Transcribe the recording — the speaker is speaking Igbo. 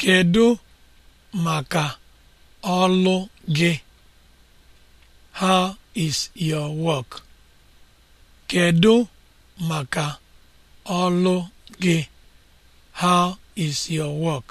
Kedu maka ọlụ gị? How is your How is your work?